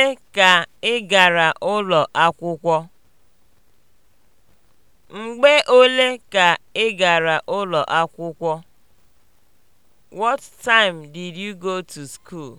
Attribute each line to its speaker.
Speaker 1: ole ka ị gara ụlọ akwụkwọ? Mgbe ole ka ị gara ụlọ akwụkwọ? What time did you go to school?